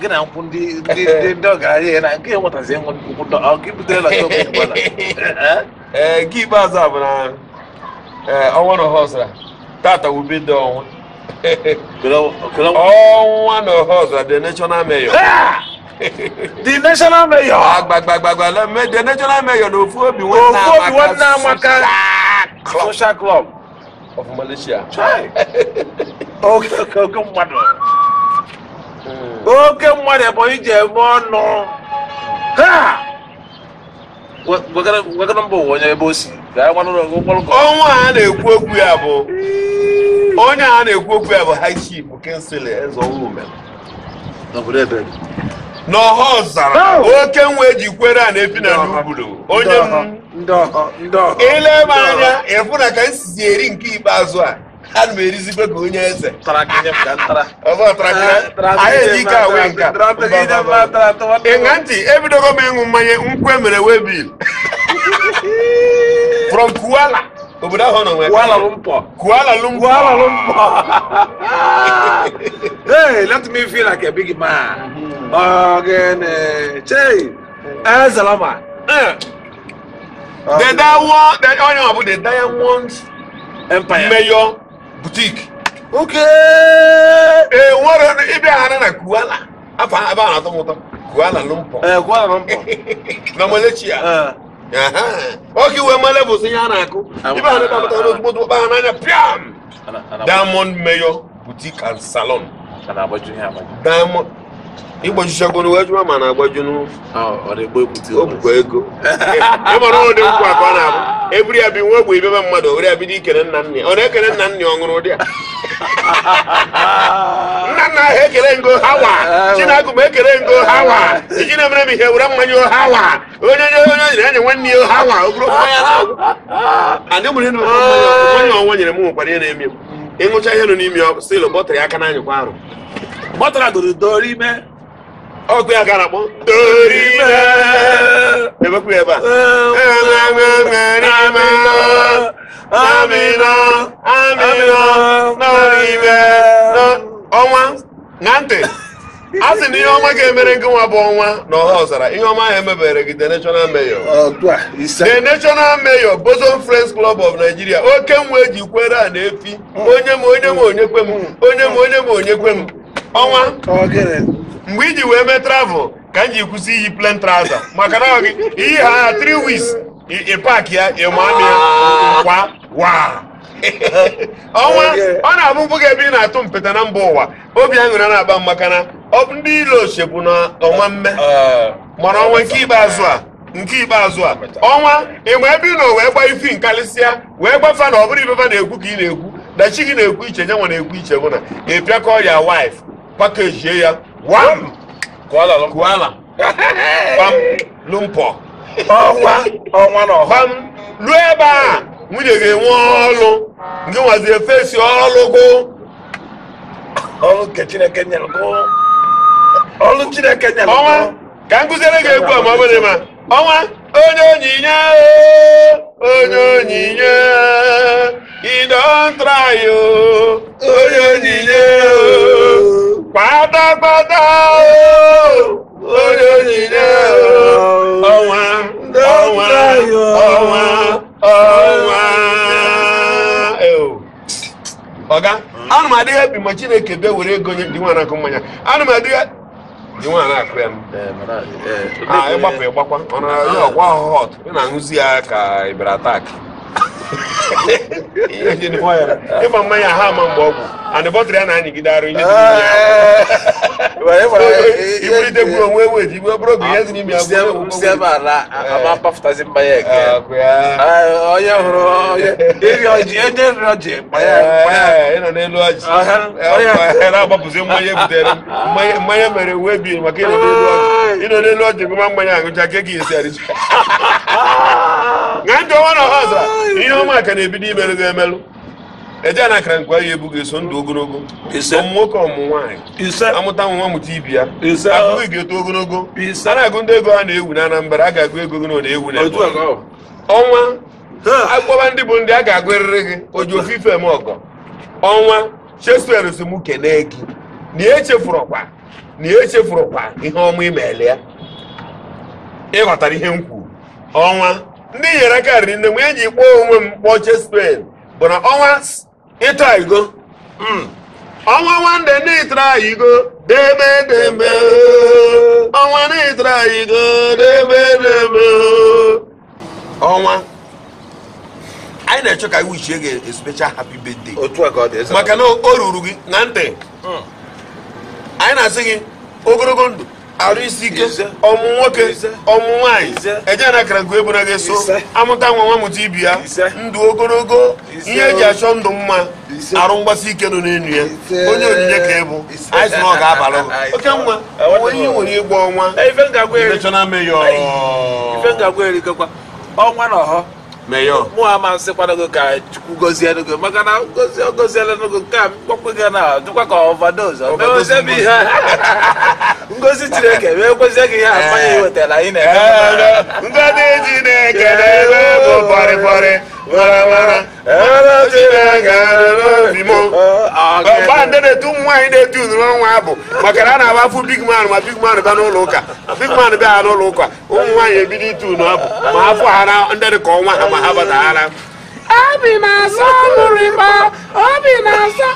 gị na nkwụ ndị ndị ndị ọgaranya ya na nke e nwetazi nkwụ ọ gị butere na shọpụ ụgbọala ee gị ikpeazụ bụ na eh, ọnwa na ọha ọzara tata wube ọnwa ọnwa na ọha ọzara the national mayor the national mayor agbagbagbagbagba lemme the national mayor na ofu obi nwe nna amaka ofu obi nwe social club of malaysia okay okay okay mmadụ oke mmadụ ebonyi ji eme ọnụ ebe ọnwa a na-ekwu okwu ya bụ onye a na-ekwu okwu ya bụ high chief kensịl ọzara oke nwa eji kwere a na-ebi na n'obodo onye anya ịfụ na ka nsizi eri nke ikpeazụ a ana m erizi ka onye eze ịṅa ntị ebidogo m ịṅụ mmanya nkwe mere webil from kuala obodo ahụ nọ nwere kuala lumpọ kuala lumpọ kuala lumpọ hey let me feel like a big man ọgịnị chei ezelama dedawo onye ọ bụ the diamond empire mayor butiki oke e enwere ịbịaghara na kuala afọ ebe a na-atọ m ụtọ kuala lumpọ eh, na malecia oke eh. iwe male bụ ihe a na-akụ ibe ha na-ekpapụta n'ozugbo ozugbo kpa ha n'anya piam diamond mayor boutique and salon diamond ịgbajuchagoro ejuma ma na-agbaju obukwe ego ịmara ụdị nkwụ akụ ọ na-abụ ebiri ya bi nwe egbe ibebe mmadụ owere ya bido ikere nna nna ọ na-ekele nna nna ọ ụdị a nna nna ahụ ekele ngo hawa chinagụ ma ekele ngo hawa eji na-emere m ihe were mmanya hawa onye onye onye enye nwanne ya hawa ogoro mmanya na-agwụ ọnwa ah. ah. nyere m nwekwara ihe na m ịṅụcha ihe nọ n'ime aka na kwa arụ ọkụ ya gara akpọ ebekwu ebe a ọnwa na ntị a sị na ihe ọma ga-emere nke nwa bụ ọnwa na ọha ọzara ihe ọma ahụ emebere gị the national mayor the national mayor boson friends club of nigeria oke nwa eji kwere a na-efi hmm. onye m onye m onye kwe m hmm. onye m onye m onye m ọnwa mgbe iji wee mee travel ka m ji kwụsị iyi plen traza maka na gị iyi ha na 3 weeks ịpak ya ịmami kwa wa ọnwa ọ na-abụ mpụ ebe ị na-atụ mpeta na mba ụwa obi aṅụrị na-aba maka na ndị ile bụ na ọnwa mme mara ọnwa nke ikpeazụ a nke ikpeazụ a ọnwa ịma ebe ị nọ wee gba ifi nkalịsịa wee gbafa na ọ bụrụ ibeba na-ekwu ka ị na-ekwu dachi gị na-ekwu iche nyanwa na-ekwu iche mụ na ị pịakọ ya wife package ya wam kuala lumpur kuala wam lumpur ọnwa ọnwa na ọham ruo ebe a nwunye ga-enwe ọlụ nke nwazi efesi ọlụgụ ọlụ nke chineke nyelụgụ ọlụ chineke nyelụgụ ọnwa ka nkụziere gị egwu a ma ọ bụrụ ma ọnwa onye onyinye onye onyinye you don try o onye onyinye o pátápátá olóyìnbó ọ̀wá ọ̀wá ọ̀wá ọ̀wá. ọga anụ m adịghị ebi ma chineke bịa were ego nye dị nwaanyị akụ mmanya anụ m adịghị dị nwaanyị akụ ya eh, eh, ah, ịgbapụ ịgbakwa ọ na-arịọ ọgwa ọtụ ị na-aṅụzi ya ka ịbịara taakị ma mmanya ha ama mgbe ọgwụ and bọtrị ya na anyịgide arụ ihe iburite gburu onwe ewu eji igbe bụrụ oge ihe dị n'ime ịnọ n'elu ọjị na-agbapụzi mmanya butere mmanya mere wee bi maka ịnọ n'elu ọjị ịnọ n'elu ọjị gụma mmanya aṅụcha ke gị esi arịcha a ndị ọnwa na ọha zara ihe ọma ka na-ebido imerụ gị emelụ eje na akara nkwa ya ebughị eso ndụ ogologo ọmụ nwoke ọmụ nwaanyị amụta nwa amụta ibi ya abụghị ga-eto ogologo a na-agụ ndị ego ha na-ewu na Anambra a ga-agụ ego gị na ọ na-ewu na ọnwa akpọba ndị bụ ndị a ga-agụ eriri gị oji ofufe m ọgọ ọnwa Shakespeare si mụ kenee gị na echefurụkwa na echefurụkwa ihe ọma imeela ya ịghọtara ihe m kwuru ọnwa ndị nyere karịrị nne mgbe e ji kpọọ onwe m kpọọ spen bụ na ọnwa ịta igo hmm. ọnwa nwande n'ịtara igo debe debe ọnwa n'ịtara igo debe debe. ọnwa anyị na-achọ ka wichie gị special happy birthday otu ọ dị maka na o ruru gị na ntị hmm. anyị na-asị gị ogologo ndụ arụ isi ike ọmụ nwoke ọmụ nwaanyị ejena akara nke ebona ga-eso amụta nwa nwa ibi ya ndụ ogologo ihe eji achọ ndụ mma arụ mgbasi ike nọ n'elu ya onye onyinye ka ịbụ anyị ọ ga-abalụ oke nwa onye ihe nwere ịgba ọnwa ọnwa na ọhọ mụ amasị kwanago ka chukwu gozie n'ogo maka na gozie goziela n'ogo nke a mkpọkpụ gị na dịkwa ka ọvadoz ọ mewezebi ihe ngozi chineke wee kwezie gị ihe amanya iwetara anyị na-eme ngozi chineke na-eme bụ pọrịpọrị maramara na-etu ụmụ nwaanyị na-etu unere ọnwa bụ maka na a na-agbafu big man ma big man bịa n'ụlọ ụka big man bịa n'ụlọ ụka ụmụ nwaanyị ebido itu unu abụ ma ha fụ ha na ndị ka ọnwa ha ma ha bata ha batahara obi na-asọ mụrịba obi na-asọ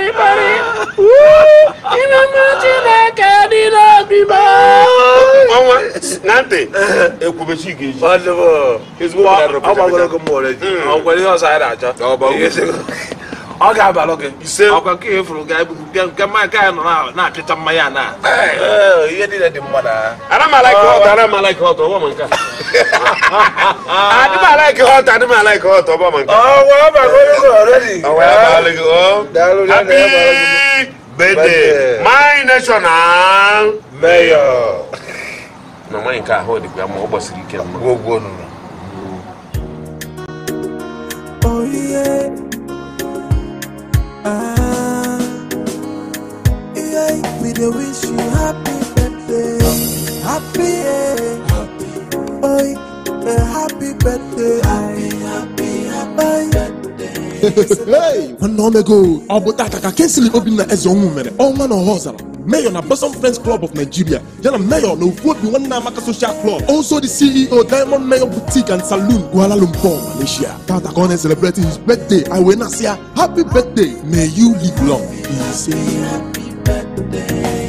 in parịparị ịnụnụ chineke dị n'obi m ọnwa na ntị ekwubechi gị ji ọgbagoro gị mmụọ ọkwere ihe ọzọ anyị na-achọ ọ ga-aba lọgị ise ọkwa ka ihe fụrụ gaa ebubu bịa nke mmanya ka ya nọ na-apịta mmanya na ihe niile dị mma na aramalaik họt aramalaik họt ọgbọ ma nke adịmalaik họt adịmalaik họt ọgbọ ma nke happy birthday my national mayor na nwanyị nke ahụ dịkwa ma ọ gbasiri ike mma Ah, yeah, we do wish you happy birthday. Happy, yeah. happy. Oi, a eh, happy birthday. Happy, happy, happy birthday. hey, one long that Abu Taka Kensington Obina as your woman, all man on oh, horse mayor na bosom friends club of nigeria yana mayor na ofuobi nwanne amaka social club also the ceo diamond mayor boutique and saloon kuala lumpur malaysia tata kone celebrating his birthday iwe nasia happy birthday may you live long he say happy birthday.